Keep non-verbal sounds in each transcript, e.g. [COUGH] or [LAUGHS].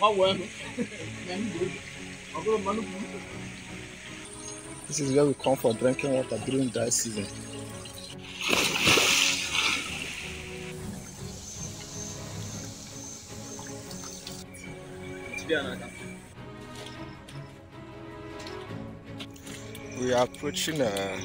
Tava o ano. [LAUGHS] Mesmo grupo. Agromando muito. Esses gajos com for drinking water during dry season. We are approaching a. Uh,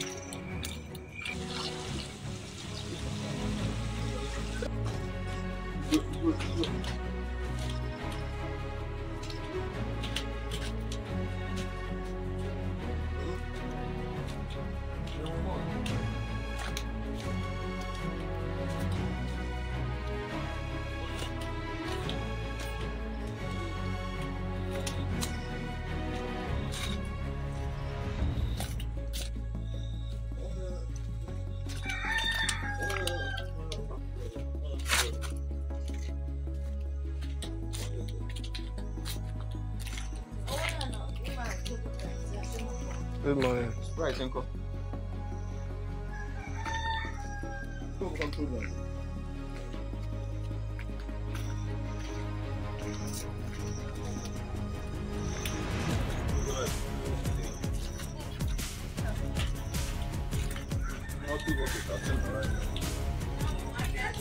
Good morning. Right, Uncle. I'll do what you're talking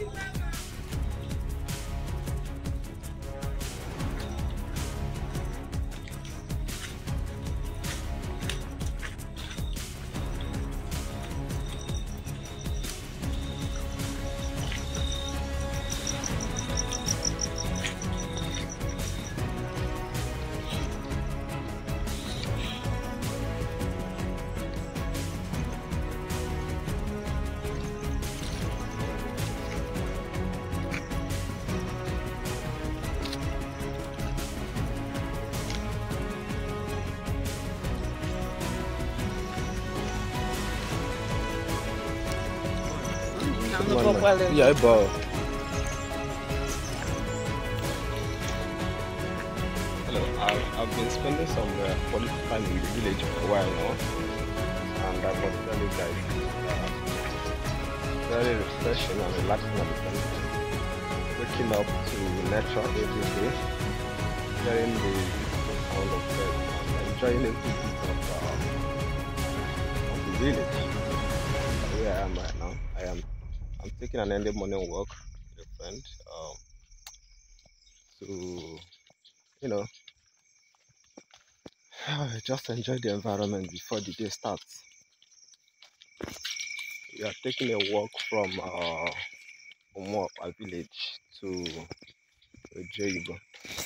about. non lo può prendere. Yeah, boh. Hello, I've, been spending some uh, quality time in the village for a while now. And I must tell you guys, uh, very refreshing and relaxing at the time. Waking up to nature every day, hearing the sound of birds, and enjoying every bit of, uh, of the village. Where I am right now, I am I'm taking an early morning walk with a friend um, to, you know, [SIGHS] just enjoy the environment before the day starts. We are taking a walk from uh, our village, to Ojoibo.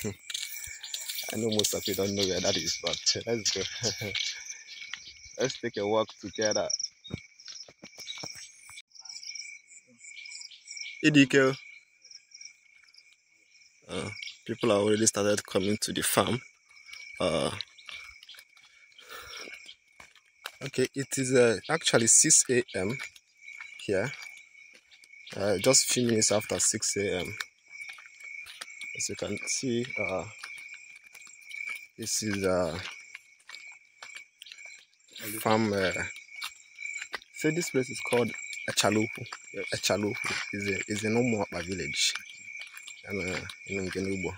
[LAUGHS] I know most of you don't know where that is, but [LAUGHS] let's go. [LAUGHS] let's take a walk together. Idike. Uh, people have already started coming to the farm. Uh, okay, it is uh, actually 6 a.m. here. Uh, just few minutes after 6 a.m. As you can see, uh, this is a uh, farm. Uh, so this place is called Achalopu. Yes. Achalopu is a, is in Umuapa village. And uh, in Ngenubo.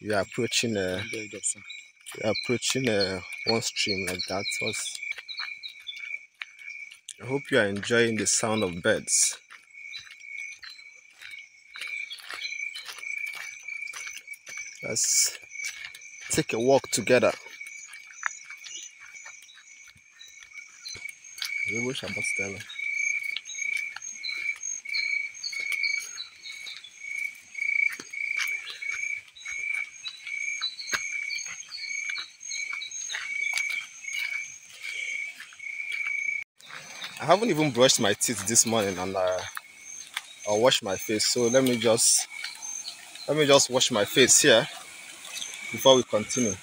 You are approaching uh, you are approaching uh, one stream like that. Was, I hope you are enjoying the sound of birds. Let's take a walk together. Wyłysz apostele. I haven't even brushed my teeth this morning and I, uh, I wash my face. So let me just let me just wash my face here before we continue.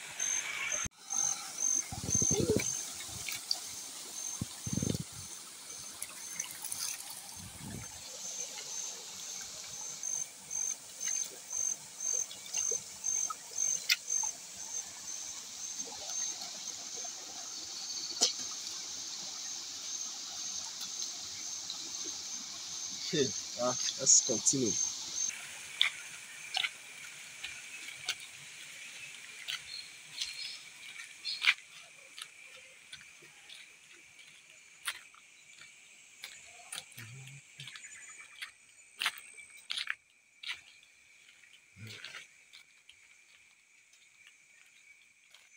continue.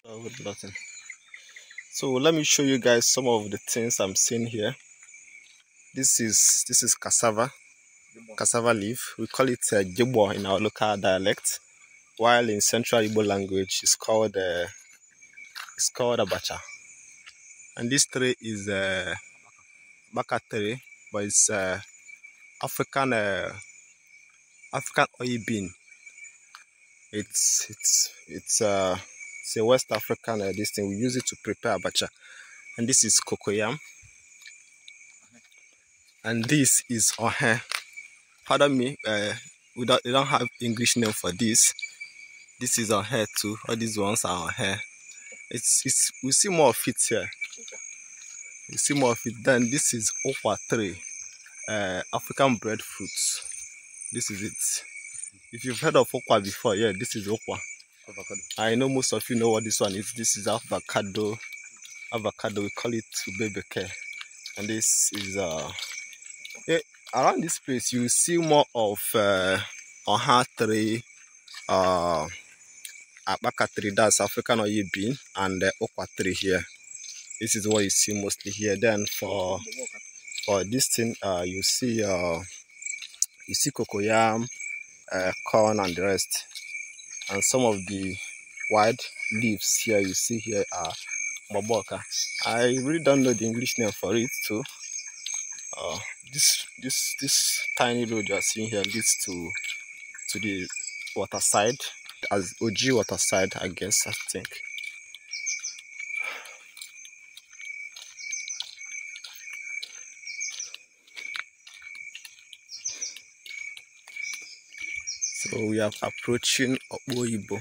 Oh, button so let me show you guys some of the things i'm seeing here this is this is cassava cassava leaf. We call it uh, jibo in our local dialect, while in Central Igbo language, it's called uh, it's called abacha. And this tree is a uh, baka tree, but it's uh, African uh, African oil bean. It's it's it's uh, it's a West African uh, this thing. We use it to prepare abacha, and this is cocoyam, and this is ohe pardon me uh, we don't, don't have english name for this this is our hair too all these ones are our hair it's it's we see more of it here you see more of it then this is offer three uh, eh, african breadfruits this is it if you've heard of okwa before yeah this is okwa avocado. i know most of you know what this one is this is avocado avocado we call it bebeke and this is uh yeah, around this place, you see more of uh, Oha tree, uh, Abaka tree, that's African or bean, and the uh, okwa tree here. This is what you see mostly here. Then for for this thing, uh, you see uh, you see cocoyam, uh, corn, and the rest. And some of the wide leaves here you see here are Maboka. I really don't know the English name for it too. Uh, this this this tiny road you are seeing here leads to to the water side as OG water side I guess I think so we are approaching Oboibo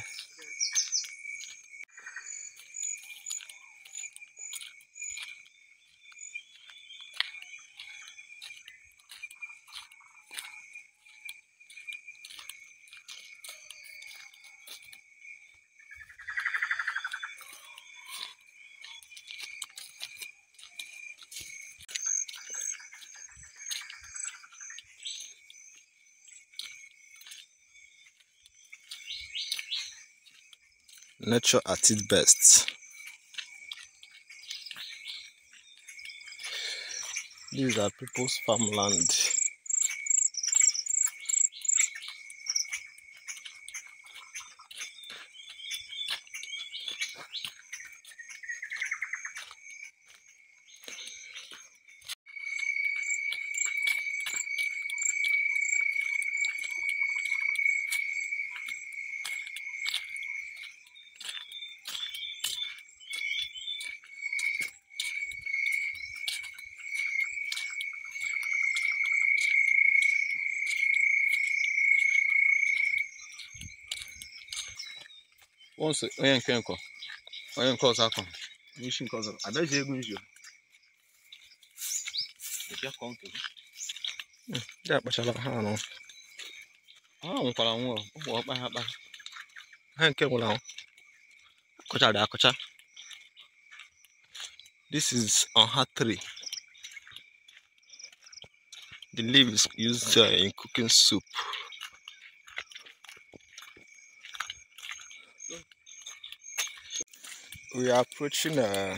nature at its best. These are people's farmland. once onye nke nkọ onye nke ọzọ akọ n'isi nke ọzọ adaji egwu nzu hmm, ndị akpachala ha anọ ha nwụkwara nwụrụ ụmụ ọkpa ha kpara ha nke gwụrụ ahụ akọchara akọcha this is on her tree the leaves used uh, in cooking soup we are approaching uh,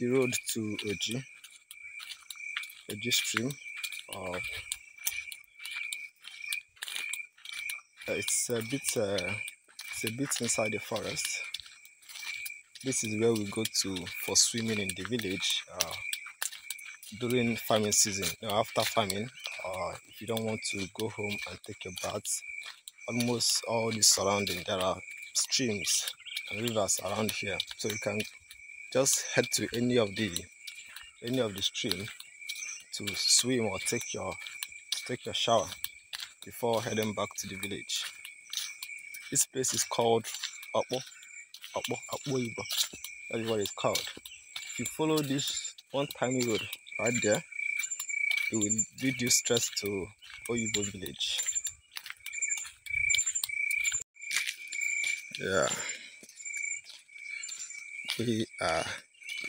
the road to Oji, Oji stream. Uh, it's a bit, uh, it's a bit inside the forest. This is where we go to for swimming in the village uh, during farming season. You after farming, uh, if you don't want to go home and take a bath, almost all the surrounding there are streams rivers around here so you can just head to any of the any of the stream to swim or take your take your shower before heading back to the village this place is called Apo Apo Apo that is what it's called if you follow this one tiny road right there it will lead you stress to Oyibo village yeah we are uh,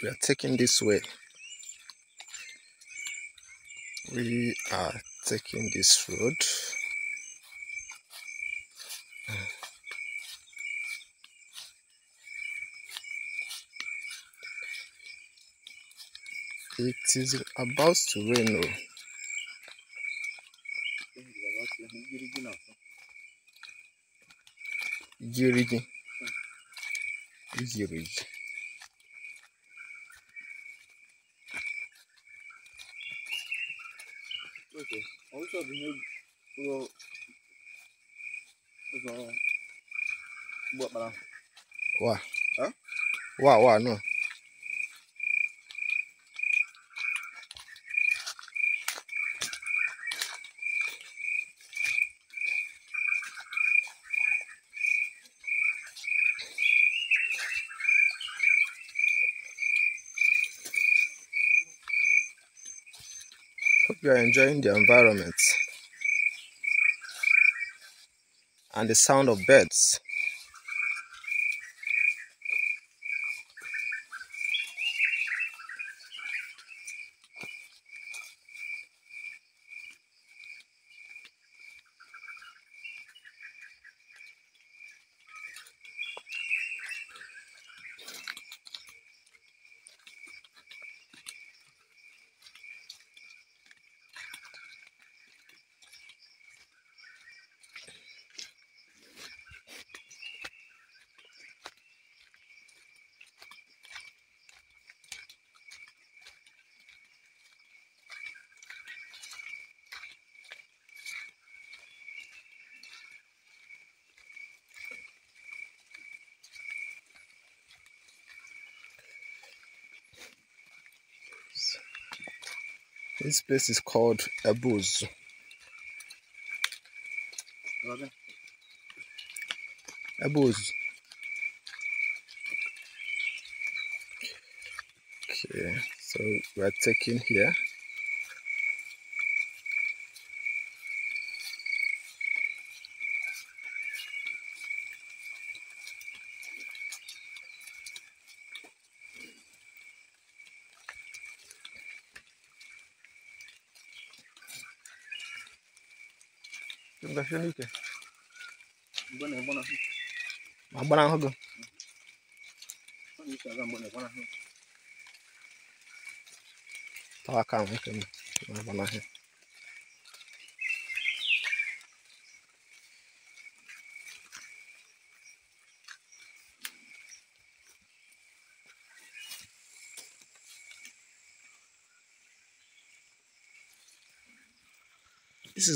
we are taking this way we are taking this road it is about to rain oh. Girigi. Listen, also the new little is what, Huh? Why? Why? No. you are enjoying the environment and the sound of birds. This place is called Abuz. Abuz. Okay, so we are taking here. This is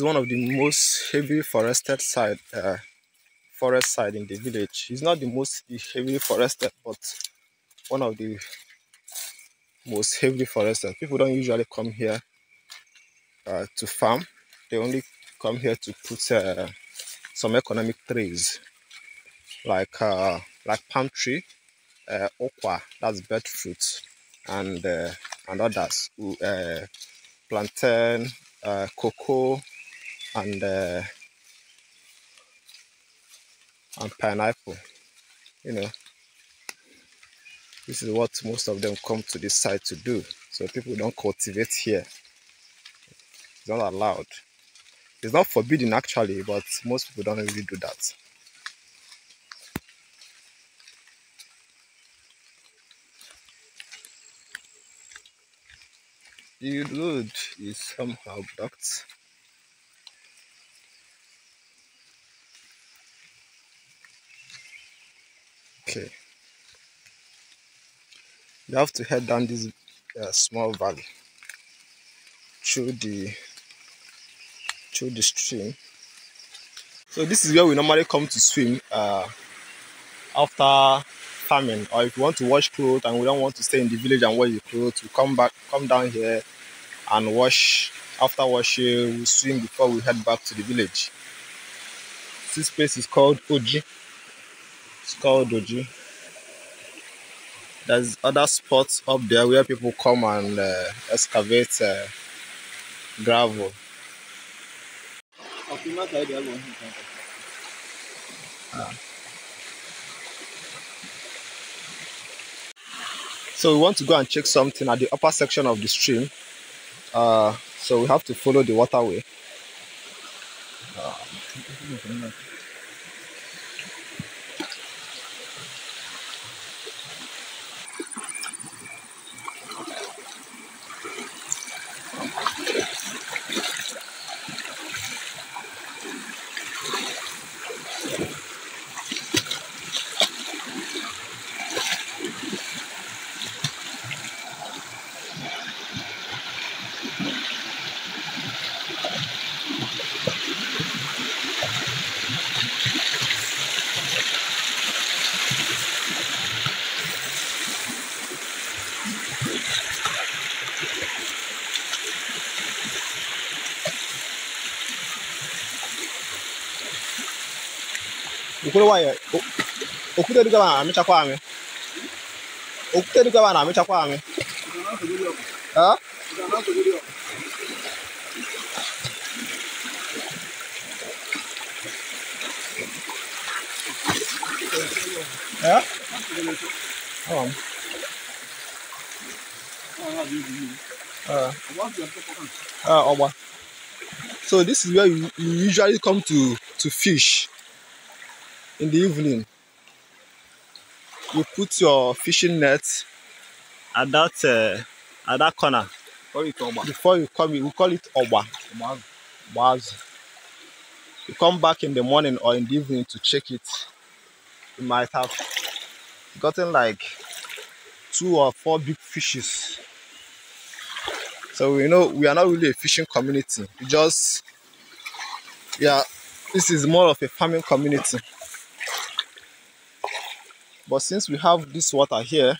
one of the most heavily forested side uh, forest side in the village. It's not the most heavily forested, but one of the most heavily forested. People don't usually come here uh, to farm. They only come here to put uh, some economic trees like uh, like palm tree, uh, okwa, that's fruit, and uh, and others, uh, plantain, uh, cocoa, and uh, and pineapple you know this is what most of them come to this site to do so people don't cultivate here it's not allowed it's not forbidden actually but most people don't really do that the road is somehow blocked okay you have to head down this uh, small valley through the through the stream so this is where we normally come to swim uh, after farming or if you want to wash clothes and we don't want to stay in the village and wash your clothes we come back come down here and wash after washing we swim before we head back to the village this place is called Oji it's called Doji. There's other spots up there where people come and uh, excavate uh, gravel. Ah. So we want to go and check something at the upper section of the stream. Uh, so we have to follow the waterway. Ah. ukule waye okwute dịka na amịchakwa amị okwute dịka na amịchakwa amị Yeah? Hold on. Uh, uh, Oma. So this is where you, you usually come to to fish. in the evening you put your fishing net at that uh, at that corner before you come in, we call it oba Baz. you come back in the morning or in the evening to check it you might have gotten like two or four big fishes so you know we are not really a fishing community we just yeah this is more of a farming community but since we have this water here,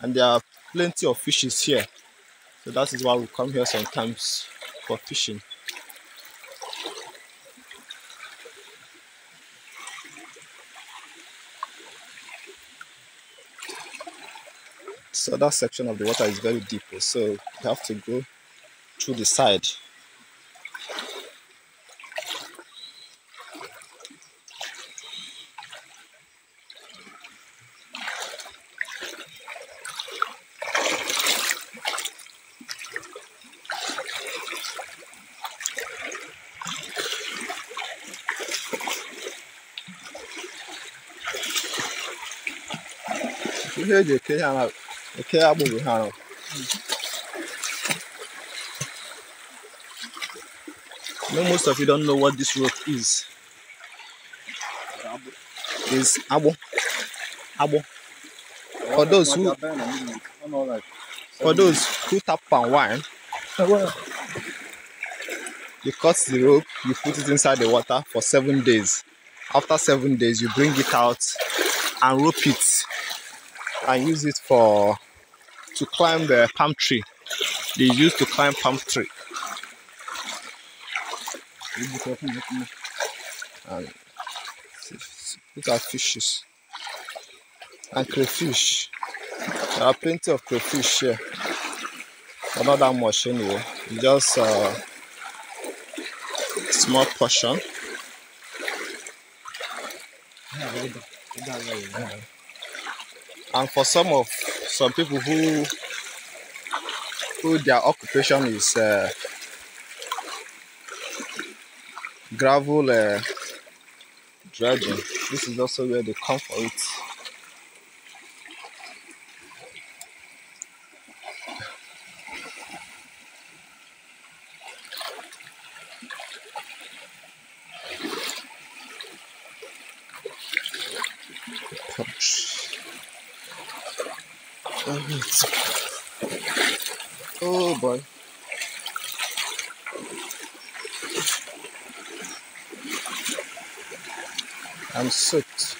and there are plenty of fishes here, so that is why we come here sometimes for fishing. So that section of the water is very deep, so you have to go through the side ihe eji eke agbụ bụ ha most of you don't know what this rope is is abo, abo. for those who for those who tap palm wine you cut the rope you put it inside the water for seven days after seven days you bring it out and rope it and use it for to climb the palm tree. They used to climb palm tree. And look at fishes and crayfish. There are plenty of crayfish here, but not that much anyway. Just a uh, small portion. Yeah. and for some of some people who who their occupation is uh, gravel uh, dredging this is also where they come for it Oh boy. I'm soaked.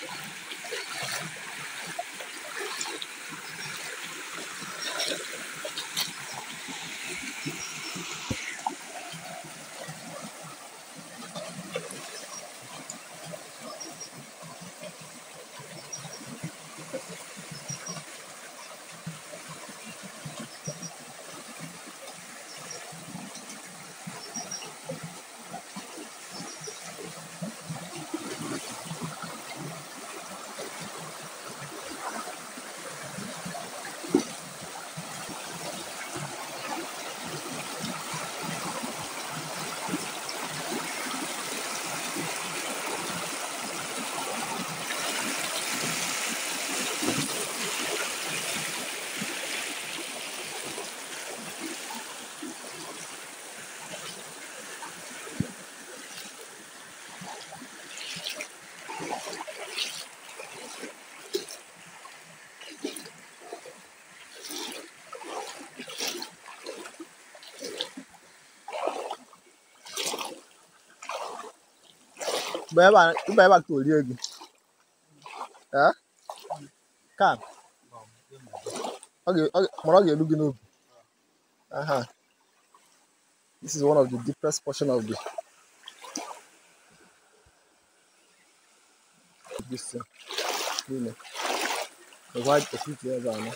Beba, tu beba que tu ligue. É? Cara. Okay, okay. Moral you're looking up. Uh-huh. This is one of the deepest portion of the this thing. Really. The white the sweet here are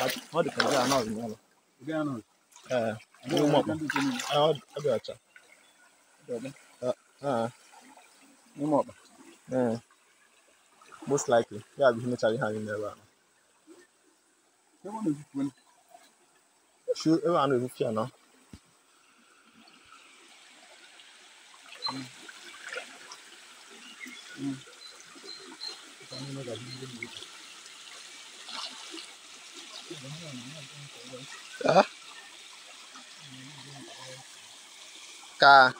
But what the can are not normal. They are not. Eh. Uh, I don't know. I don't know. Uh, ah. no more. Uh, most likely. Yeah, we need to have in there. Everyone is win. Sure, everyone is here now. Mm. Mm. Ah. Ka.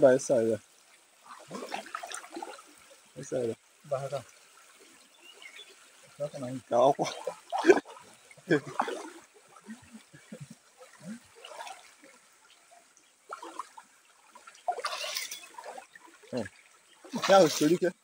Vai, essa vai sair área. Barra cá. Calma. Hum. Ya, söyleyeyim ki.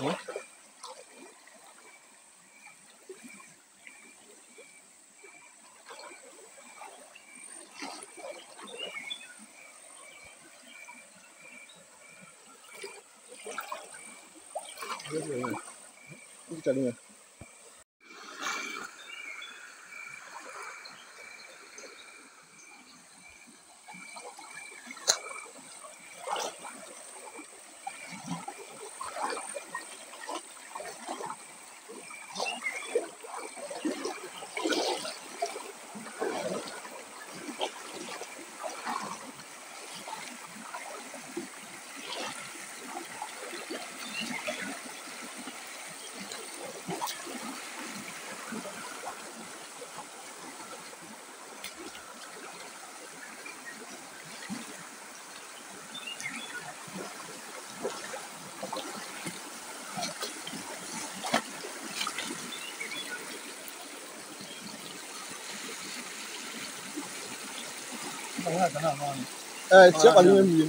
어? 그래서 이거 자르면 Eh, siapa yang mungkin?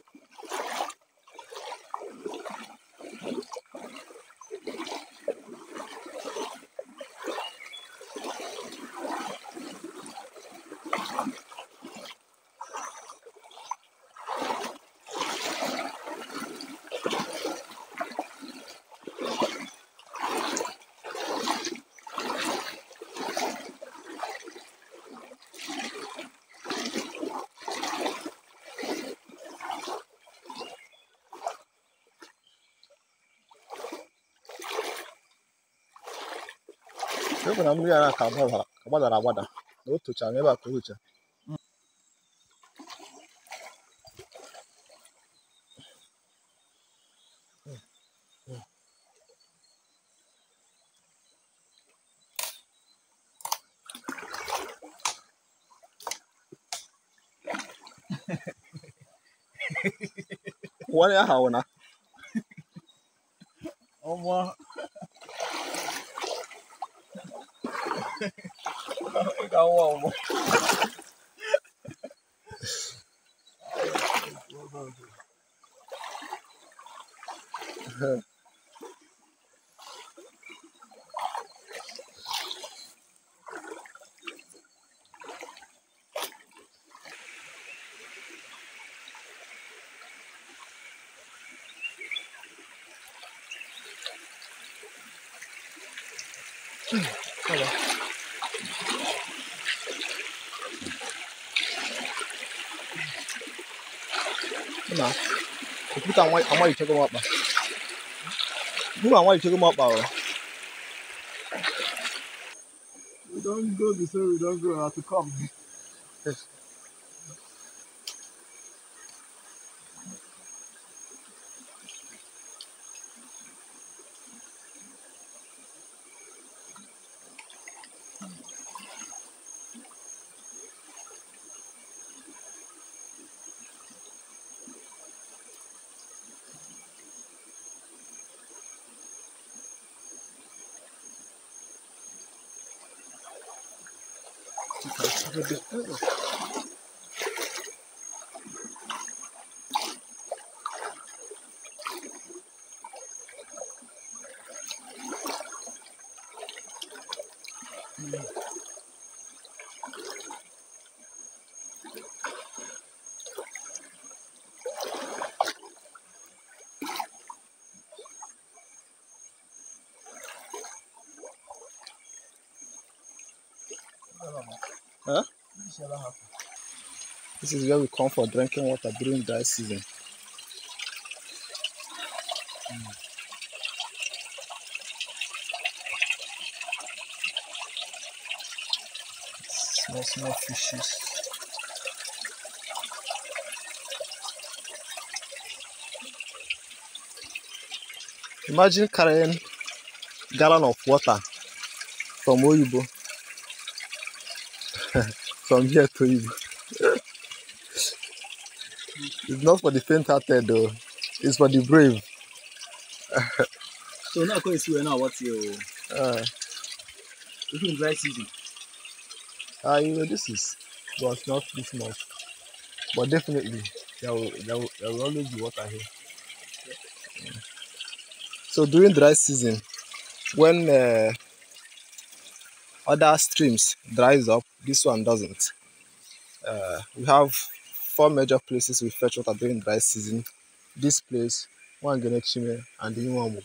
ịhụ na mmiri a ka gbadara agbada na o tochara n'ebe a ka o tocha wani ya hauna. Ọmọ Vou pegar um almoço. I want, I you to check them up. Who I want you to check up, bro? We don't go this way, we don't go, I have to come. Meu Deus. never happen. This is where we come for drinking water during dry season. Mm. Small, small fishes. Imagine carrying gallon of water from Oyibo. [LAUGHS] from here to Igbo. it's not for the faint-hearted though. It's for the brave. so now going to now what's your uh ah. even dry season? Ah, uh, you know this is well not this much. But definitely there will, there will, there will always be water here. Yeah. So during dry season, when uh, other streams dries up this one doesn't uh, we have four major places we fetch water during dry season this place one Chime, and the new one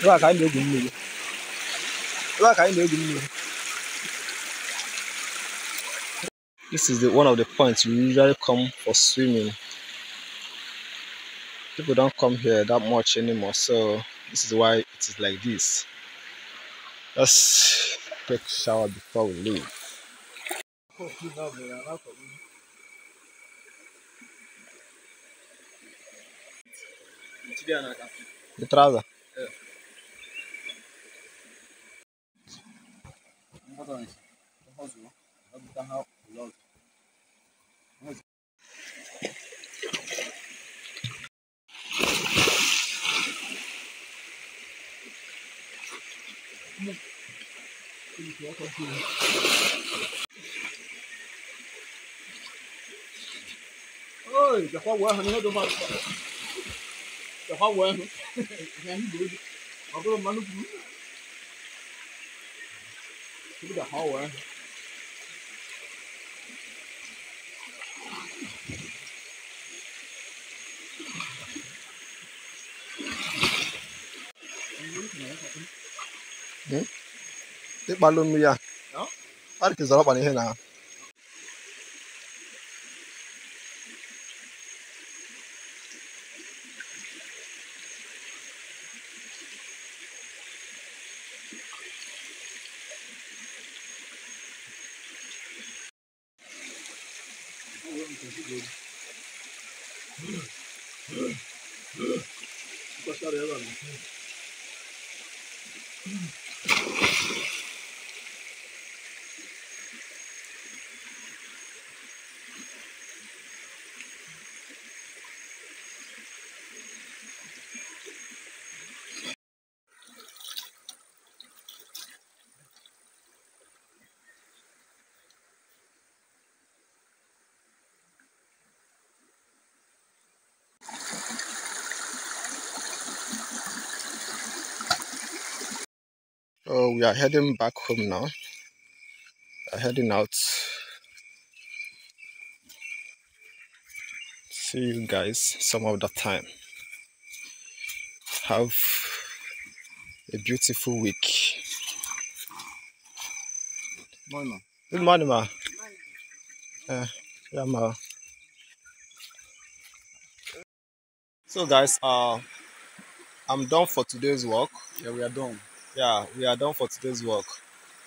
ka mmiri ka mmiri this is the one of the points we usually come for swimming people don't come here that much anymore so this is why it is like this let's take a shower before we leave the trouser 哎，这花纹上面都满，这花纹，这 [LAUGHS] 好多毛都粗，是不是这花纹？ịkpalụ nnu ya arkizara ọkpana ihe na ha Mm-hmm. So oh, we are heading back home now. We are heading out. See you guys some other time. Have a beautiful week. Morning, ma. Good morning, ma. Eh, yeah, ma. So guys, uh, I'm done for today's work. Yeah, we are done yeah, we are done for today's work.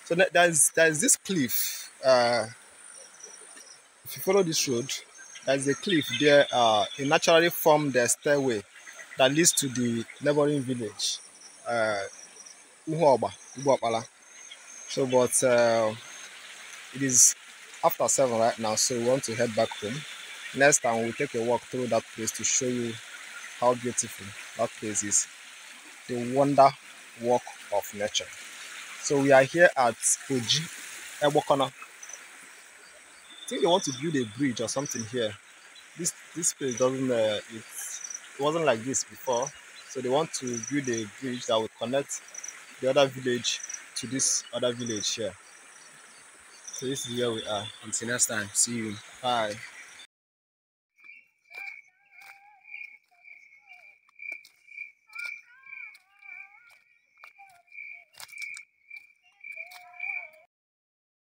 So there's there's this cliff. Uh, if you follow this road, there's a cliff there. Uh, it naturally formed the stairway that leads to the neighboring village, uh, Uhuoba, So, but uh, it is after seven right now, so we want to head back home. Next time we'll take a walk through that place to show you how beautiful that place is. The wonder walk of nature. So we are here at Oji Ebokona. I think they want to build a bridge or something here. This this place doesn't uh, it wasn't like this before. So they want to build a bridge that will connect the other village to this other village here. So this is where we are. Until next time, see you. Bye.